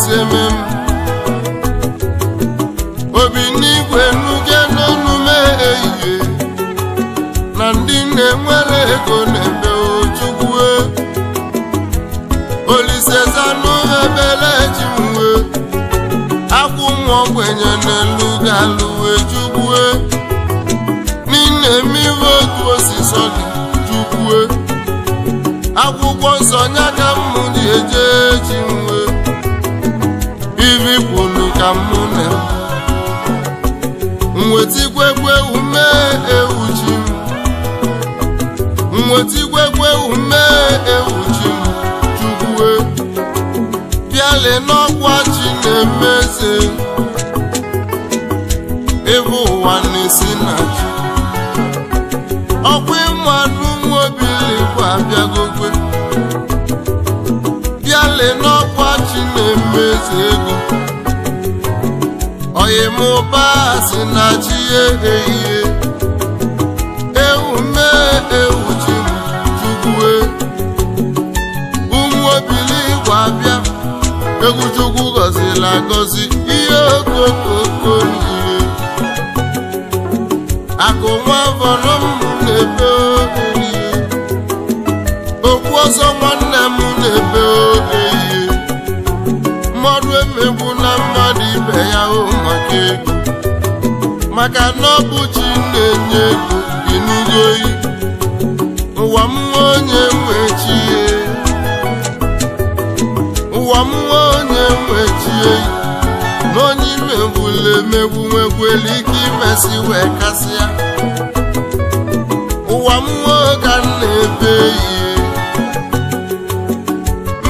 Obinigwe eseme m obi n'igwe nuge n'ọnụme ehihie na ndị na-enwere ego na-eme ojukwue olisezanụ ebele ji mwe akwụ nwa ogbenye n'elu ga-alụwe jukwue n'ime mmiri otu osisi jukwue akwụkwọ nsọ nya ka dị ji eje ji ka m na nweta ume ewu ji m nweta ume ewu ji m chukwue bịale n'ọkwa chi na-emeze ebe ụwa na-esi na ji ọkwa ịmadụ bụ abịagogwe bịale n'ọkwa chi na-emeze ego anyị mụba si na chi ehihie ewu mee ewu chi ụmụ obili gwa bịa egwu gọzila gọziri agọzi ihe okokoko ihe akụ na maka na ọ bụ chi na-enye ego dị n'uru oyi ụwa m nwa onye nwe chi e. ụwa m nwa onye nwe chi e. na emegbu nwegwuelu ike imesi wee kasịa ụwa m nwa ka na-ebe ihe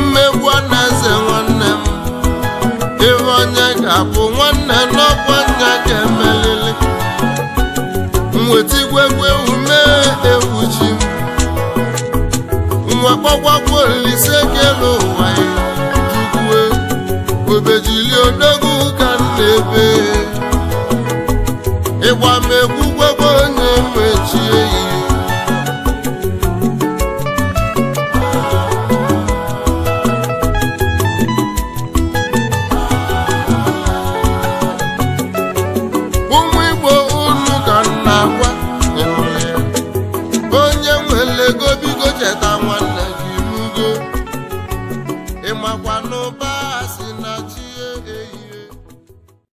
mmegbu na eze nwanne m ebe onye ga-abụ n'ọkwa nna ga-emelili mweta igwegwe ume ewu ji nwa kpọkwakwu olise ke n'ụwa ya jukwue obejili odogwu ka m na-ebe ịgba m egwu guagua no va.